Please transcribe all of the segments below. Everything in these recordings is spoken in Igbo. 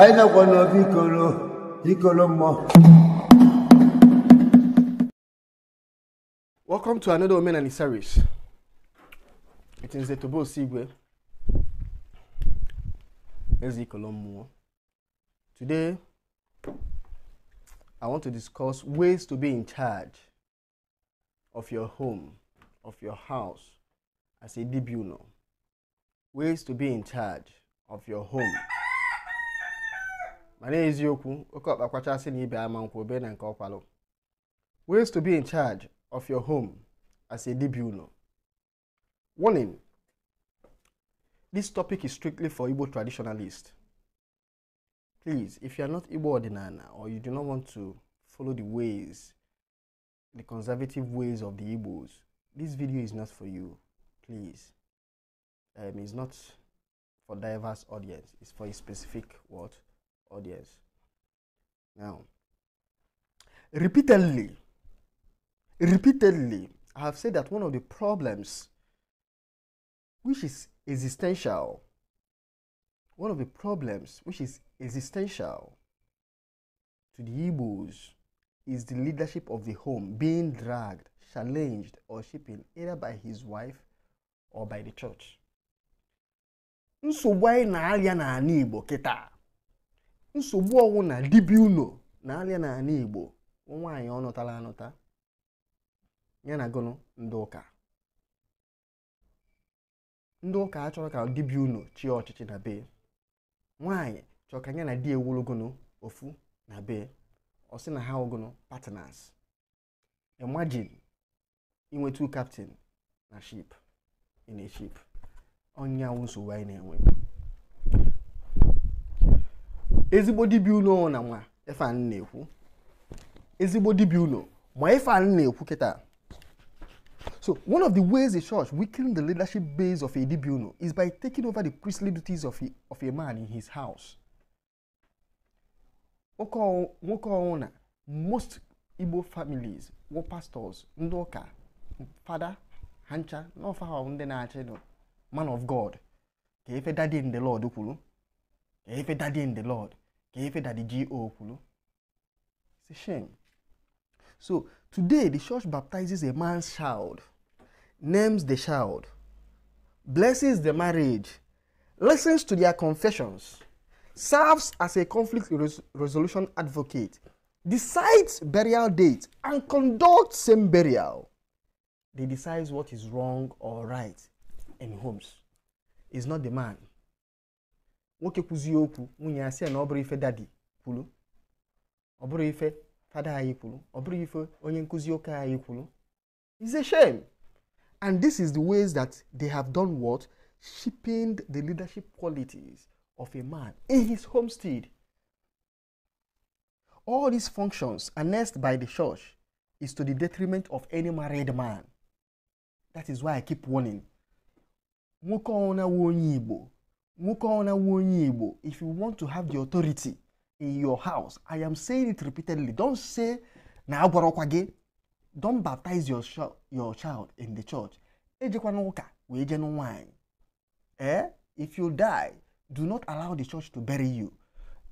aidha kwa novikolo ikolomo welcome to another women and service it is the etobo sigwe ezikolomo today i want to discuss ways to be in charge of your home of your house as a tribunal ways to be in charge of your home ma na-eziokwu oke ọkpa kwachasị na ibe ama nkwa obe na nke ọkwalụ ways to be in charge of your home as a dibia unu warning this topic is strictly for igbo traditionalists please if you are not igbo ordinana or you do not want to follow the ways the conservative ways of the igbos this video is not for you please um, it's not for diverse audience it's for a specific what audience. Now, repeatedly, repeatedly, I have said that one of the problems which is existential, one of the problems which is existential to the Igbos is the leadership of the home being dragged, challenged, or shaped either by his wife or by the church. So why na na-arịa n'ala Igbo kịta nsogbu ọnwụ na dibịa unu na-alịa n'ala Igbo nwaanyị ọ nụtala anụta ya na gụnụ ndị ụka ndị ụka achọrọ ka dibịa unu chịa ọchịchị na be nwaanyị chọrọ ka ya na di ewulugụnụ ofu na be ọ sị na ha ụgụnụ partners imagine inwetu kaptin na ship in a onye ọnya nsogbu anyị na-enwe ezigbo dibịa unu na nwa ife anyị na-ekwu ezigbo dibịa unu ma ife anyị na-ekwu kịta so one of the ways a church weakening the leadership base of a dibịa is by taking over the priestly duties of a, of a man in his house nwoke ọnwụ na most igbo families were pastors ndị ụka fada hancha ncha na ọfa ha ndị na-achị nọ man of god ka efe daddy in the lord kwuru ka efe daddy in the lord Kefe that the G.O. It's a shame. So today the church baptizes a man's child, names the child, blesses the marriage, listens to their confessions, serves as a conflict res- resolution advocate, decides burial date, and conducts same burial. They decide what is wrong or right in homes. It's not the man, nwoke kwuzie okwu nwunye ya na ọ bụrụ ife dadi kwuru ọ bụrụ ife fada anyị kwuru ọ bụrụ ife onye nkụzi ụka anyị kwuru it's a shame and this is the ways that they have done what cheapened the leadership qualities of a man in his homestead all these functions annexed by the church is to the detriment of any married man that is why i keep warning nwoke ọnwụ na onye igbo nwoke ọna nwe onye Igbo if you want to have the authority in your house I am saying it repeatedly don say na agwarọkwa gị don baptize your, your child in the church ejekwana ụka wee jenu nwaanyị eh if you die do not allow the church to bury you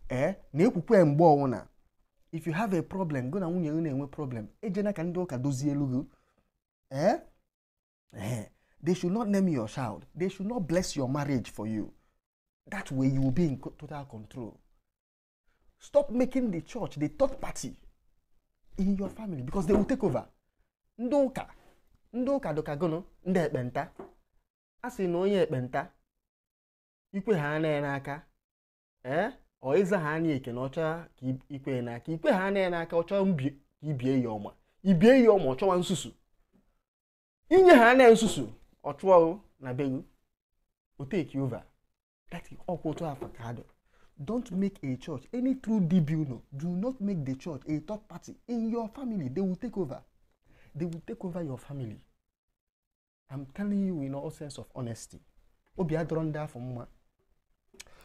eh na-ekwukwe mgbe ọnwụna if you have a problem go na nwunye na-enwe problem ejena ka ndị ụka dozie elu gị eh? eh they should not name your child they should not bless your marriage for you That way you will be in total control. Stop making the church the third party in your family because they will take over. Ndị ụka ndị ụka dọkagono ndị ekpenta a sị na onye ekpenta ikwe ha anaghị n'aka ee eh? ọ ịza ha anya eke na ọcha ka ikwe n'aka ikwe ha anaghị n'aka ọchọ ka ibie ya ọma ibie ya ọma ọchọwa nsusu inye ha anaghị nsusu ọchụọrụ na begu oteki ova That is Okwoto Afakado. Don't make a church, any true DB, no. Do not make the church a third party in your family. They will take over. They will take over your family. I'm telling you in all sense of honesty. Obi Adronda for Muma.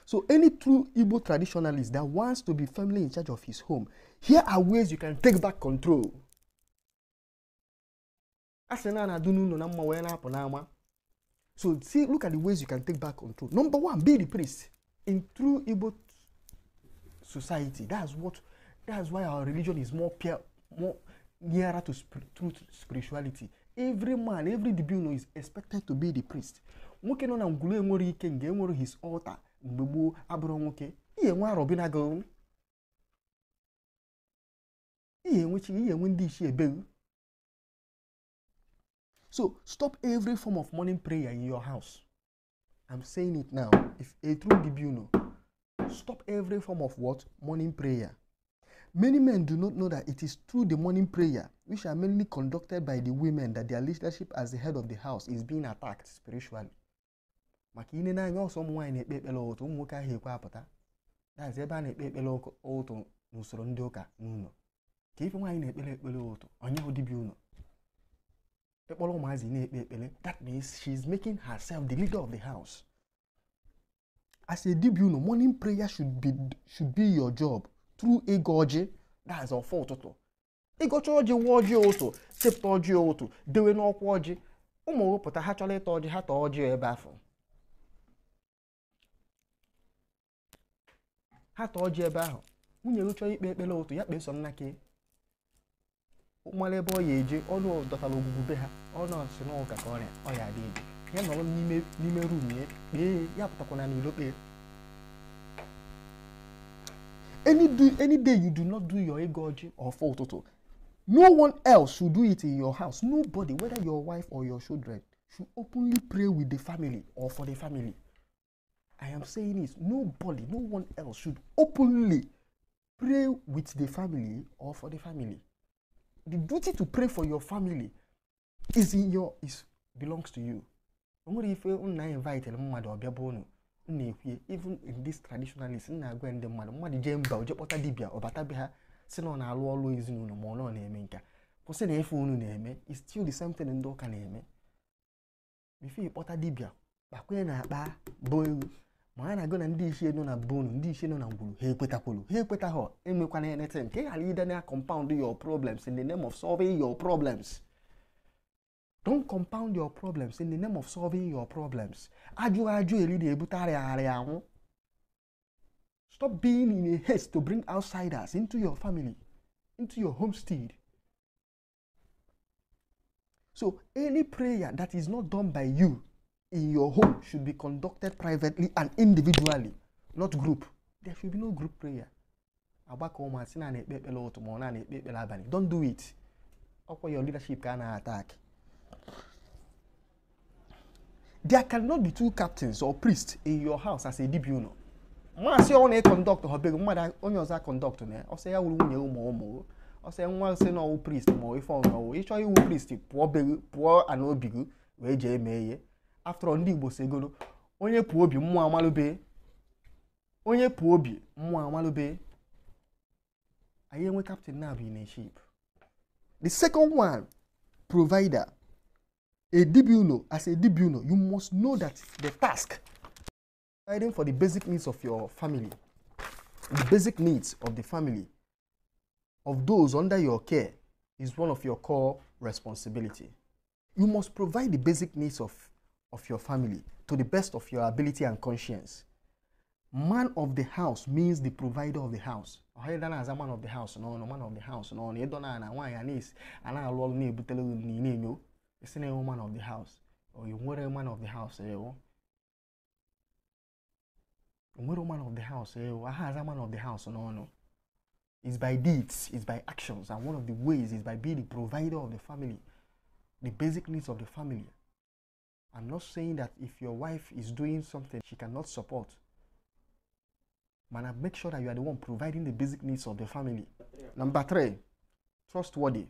So any true Igbo traditionalist that wants to be firmly in charge of his home, here are ways you can take back control. A sị na na-adụ n'ụlọ na mma wee na-apụ n'ama So see, look at the ways you can take back control. Number one, be the priest. In true Igbo society, that's what that's why our religion is more pure, more nearer to sp- true spirituality. Every man, every dibino is expected to be the priest. Nwoke nọ na ngwulu enwere ike nga enwere his altar mgbe gboo abụrụ nwoke ihe enwe arọbinago ihe enwechi ihe enwe ndị ichie ebeghị So stop every form of morning prayer in your house. I'm saying it now. If a true bibuno, stop every form of what? Morning prayer. Many men do not know that it is through the morning prayer, which are mainly conducted by the women, that their leadership as the head of the house is being attacked spiritually. maka ine n'anya ọsọ ụmụ nwaanyị na-ekpe ekpere ụtụ ụmụ nwoke ahụ ekwe apụta dazi ebe a na-ekpe ekpere ụtụ n'usoro ndị ụka n'ụlọ ka ife nwaanyị na-ekpere ekpere ụtụ onye hụ dibịa ụlọ ịkpọrọ ụmụazị na-ekpe ekpere that means she is making herself the leader of the house as a dibia morning prayer should be, should your job through ego ọjị that's ọfọ ụtụtụ ịgọcha ọjị nwa ọjị ụtụ sepụta ọjị ụtụ dewe n'ọkwa ọjị ụmụ wepụta ha chọrọ ịta ọjị ha taa ọjị ebe afọ ha taa ọjị ebe ahụ nwunye m ikpe ekpere ụtụ ya kpee nnake nwere ebe ọ ya eje ọnụ dọtara ogwugwu ha ọnụ ọsị na ụka ka ọrịa ọ ya adịghị ya nọrọ n'ime rum ya kpee ya pụtakwana n'ilo kpee any, do, any day you do not do your egoji or for total no one else should do it in your house nobody whether your wife or your children should openly pray with the family or for the family i am saying this nobody no one else should openly pray with the family or for the family the duty to pray for your family is in your is belongs to you o nwere ife nna invitere mmadụ ọbịa bụ unu na-ekwuye even in this traditionalist nna agwa ndị mmadụ mmadụ jee mba oje kpọta dibịa ọbatabe ha si na ọ na-alụ ọlụ ezinụlọ ma ọ na-eme nka kwụsị na efe unu na-eme is still the same thing ndị ụka na-eme bife ịkpọta dibịa na akpa bụ maana gona ndị ichie nọ na bonu ndị ichie nọ na ngwuru e ha ekwetakwolu ha ekwetaghọ enwekwana anything ka ị ghara ide na compound your problems in the name of solving your problems don't compound your problems in the name of solving your problems ajụ ajụ eri na-ebute arịagharị anwụ stop being in a haste to bring outsiders into your family into your homestead so any prayer that is not done by you in your home should be conducted privately and individually, not group. There should be no group prayer. Agbakọ ụmụasị na na-ekpe ekpere ụtụ ma ọ na na-ekpe ekpere abalị. Don't do it. Ọkwa your leadership ka na-attack. There cannot be two captains or priests in your house as a dibune. Maasị ọ na-ekondọkt ha bego mmadụ onye ọzọ akondọkt na ya. Ọsọ ya wuru nwunye ụmụ ụmụ ọsọ nwa nsị na ọwụ priest ma ọ ife ọnụ ọwụ ịchọ iwu priest pụọ ana obi gị wee jee mee ihe after all ndị igbo si egolo onye pụọ obi mmụọ amalụbe onye pụọ obi mmụọ amalụbe anyị enwe captain na abụ in ship the second one provider a dibuno as a dibuno you must know that the task providing for the basic needs of your family the basic needs of the family of those under your care is one of your core responsibility you must provide the basic needs of of your family to the best of your ability and conscience. Man of the house means the provider of the house. Ọhịa as a man of the house nọ no man of the house nọ nọ ịdọ na na nwaanyị a na-esi a na-alụ ọrụ na-ebutere ụlọ na na-enyo esi na man of the house or you nwere man of the house ewu. Nwere man of the house ewu aha a man of the house nọ nọ. It's by deeds, it's by actions and one of the ways is by being the provider of the family, the basic needs of the family. I'm not saying that if your wife is doing something she cannot support. Man, make sure that you are the one providing the basic needs of the family. Yeah. Number three, trustworthy.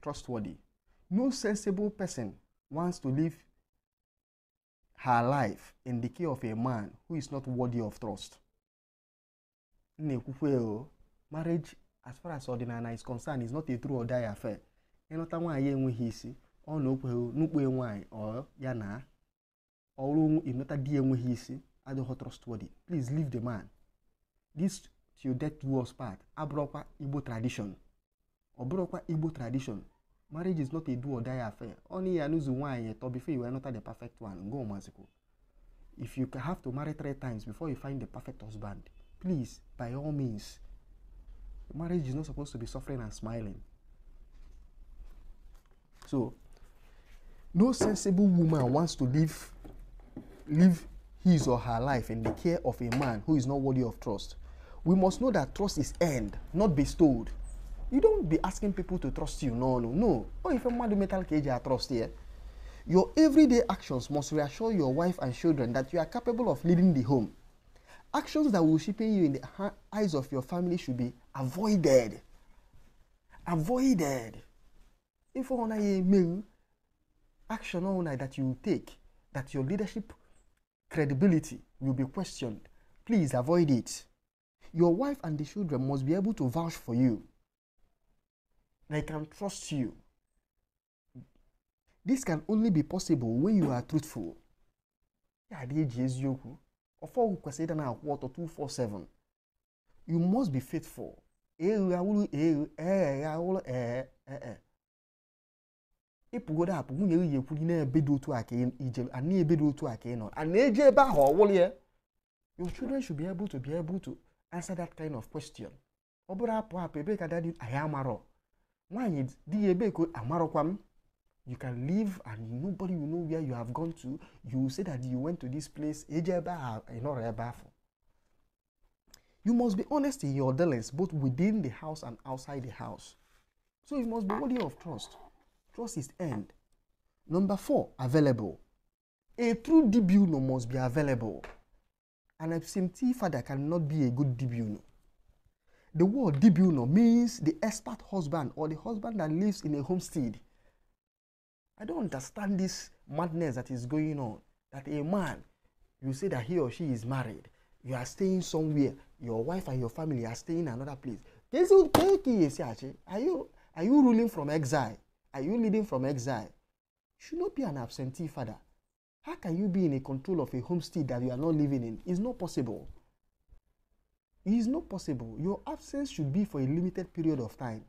Trustworthy. No sensible person wants to live her life in the care of a man who is not worthy of trust. Marriage, as far as ordinary is concerned, is not a true or die affair ọ na-ekwe n'ukpo nwaanyị ọ ya na ọrụ emeta di enweghị isi adịghị trustworthy please leave the man this till death was us part abụrụkwa igbo tradition ọ bụrụkwa igbo tradition marriage is not a do or die affair only ya n'ụzọ nwaanyị eto before you will not the perfect one go maziko if you have to marry three times before you find the perfect husband please by all means marriage is not supposed to be suffering and smiling so No sensible woman wants to live, live his or her life in the care of a man who is not worthy of trust. We must know that trust is earned, not bestowed. You don't be asking people to trust you. No, no, no. Oh, if a man metal cage, I trust here. Your everyday actions must reassure your wife and children that you are capable of leading the home. Actions that will cheapen you in the eyes of your family should be avoided. Avoided. If you want to action only that you take, that your leadership credibility will be questioned. Please avoid it. Your wife and the children must be able to vouch for you. They can trust you. This can only be possible when you are truthful. You must be faithful ịpụgodo apụ nwunye gị ekwuri na-ebedo otu a ka ije ana ebedo otu a ka ị nọ ana eje ebe ahụ ọwụrụ ya your children should be able to be able to answer that kind of question ọ bụrụ apụ apụ ebee ka dadi anyị amarọ nwaanyị di ya ebee ka amarọkwa m you can live and nobody will know where you have gone to you will say that you went to this place eje ebe ahụ ịnọrọ ebe afọ you must be honest in your dealings both within the house and outside the house so you must be worthy of trust Trust is earned. Number four, available. A true DBUNO must be available. An absentee father cannot be a good DBUNO. The word DBUNO means the expert husband or the husband that lives in a homestead. I don't understand this madness that is going on. That a man, you say that he or she is married, you are staying somewhere, your wife and your family are staying in another place. Are you, are you ruling from exile? Are you leading from exile? You should not be an absentee father. How can you be in a control of a homestead that you are not living in? It's not possible. It is not possible. Your absence should be for a limited period of time.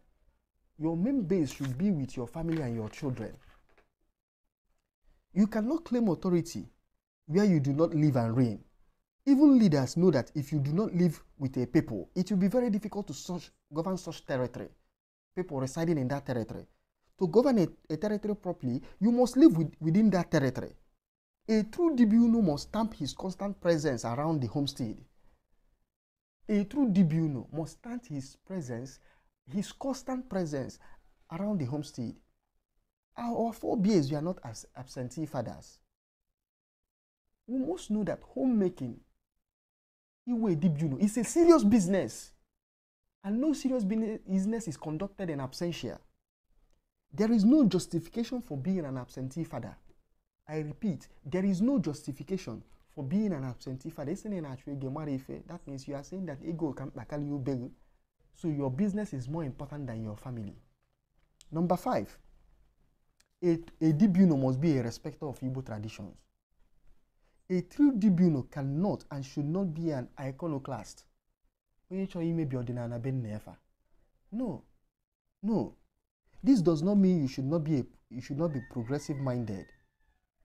Your main base should be with your family and your children. You cannot claim authority where you do not live and reign. Even leaders know that if you do not live with a people, it will be very difficult to such, govern such territory, people residing in that territory. to govern a, a territory properly, you must live with, within that territory. A true Dibuno must stamp his constant presence around the homestead. A true Dibuno must stamp his presence, his constant presence around the homestead. Our forebears, we are not as absentee fathers. We must know that homemaking Iwe Dibuno is a serious business. And no serious business is conducted in absentia. There is no justification for being an absentee father. I repeat, there is no justification for being an absentee father. That means you are saying that ego can you So your business is more important than your family. Number five, a, a dibuno must be a respecter of Igbo traditions. A true tribunal cannot and should not be an iconoclast. No, no, This does not mean you should not be a, you should not be progressive minded.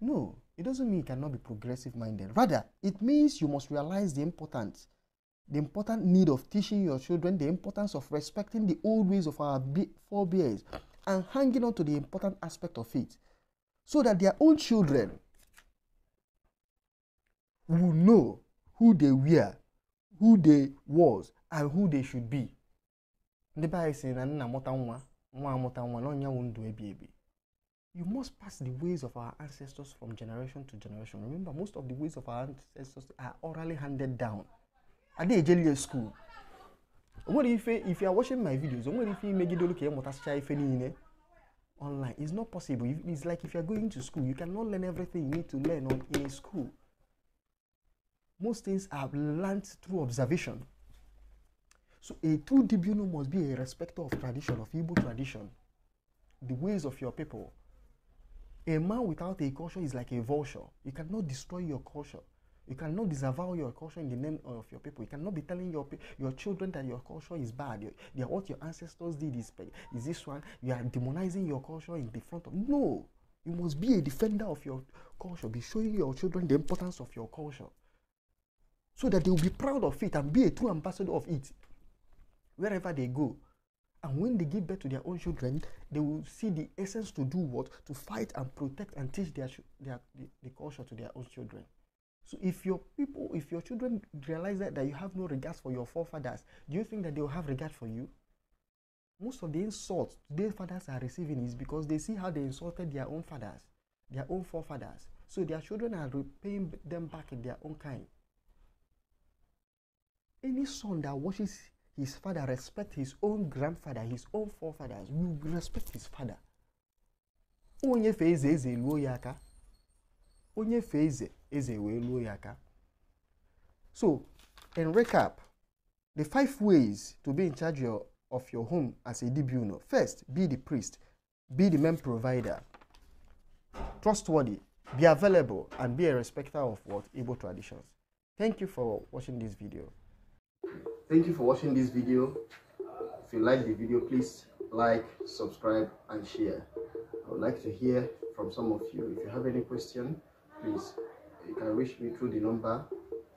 No, it doesn't mean you cannot be progressive minded. Rather, it means you must realize the important, the important need of teaching your children the importance of respecting the old ways of our forebears and hanging on to the important aspect of it so that their own children will know who they were who they was and who they should be. ndị be anyị sị na nna mụta nwa nwa amụta nwa na ọnyanwụ ndụ ebi ebi you must pass the ways of our ancestors from generation to generation remember most of the ways of our ancestors are orally handed down adeejelie school o school? What if if you are watching my videos o nwere ife imegide olu ka ị mụtasịcha ife niile online it's not possible it's like if you are going to school you cannot learn everything you need to learn in a school most things are learned through observation So a true Dibunu must be a respecter of tradition, of Igbo tradition, the ways of your people. A man without a culture is like a vulture. You cannot destroy your culture. You cannot disavow your culture in the name of your people. You cannot be telling your your children that your culture is bad. Your, they are what your ancestors did is, is this one. You are demonizing your culture in the front of no. You must be a defender of your culture. Be showing your children the importance of your culture, so that they will be proud of it and be a true ambassador of it. wherever they go. And when they give birth to their own children, they will see the essence to do what? To fight and protect and teach their, their the, the culture to their own children. So if your people, if your children realize that, that you have no regards for your forefathers, do you think that they will have regard for you? Most of the insults their fathers are receiving is because they see how they insulted their own fathers, their own forefathers. So their children are repaying them back in their own kind. Any son that watches his father, respect his own grandfather, his own forefathers. We respect his father. Onye feze eze luo ya aka. Onye fe eze luo So, in recap, the five ways to be in charge of your home as a dibuno. First, be the priest. Be the main provider. Trustworthy. Be available and be a respecter of what Igbo traditions. Thank you for watching this video thank you for watching this video if you like the video please like subscribe and share i would like to hear from some of you if you have any question please you can reach me through the number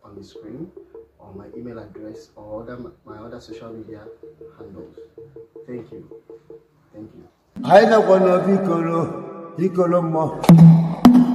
on the screen or my email address or other my other social media handles thank you thank you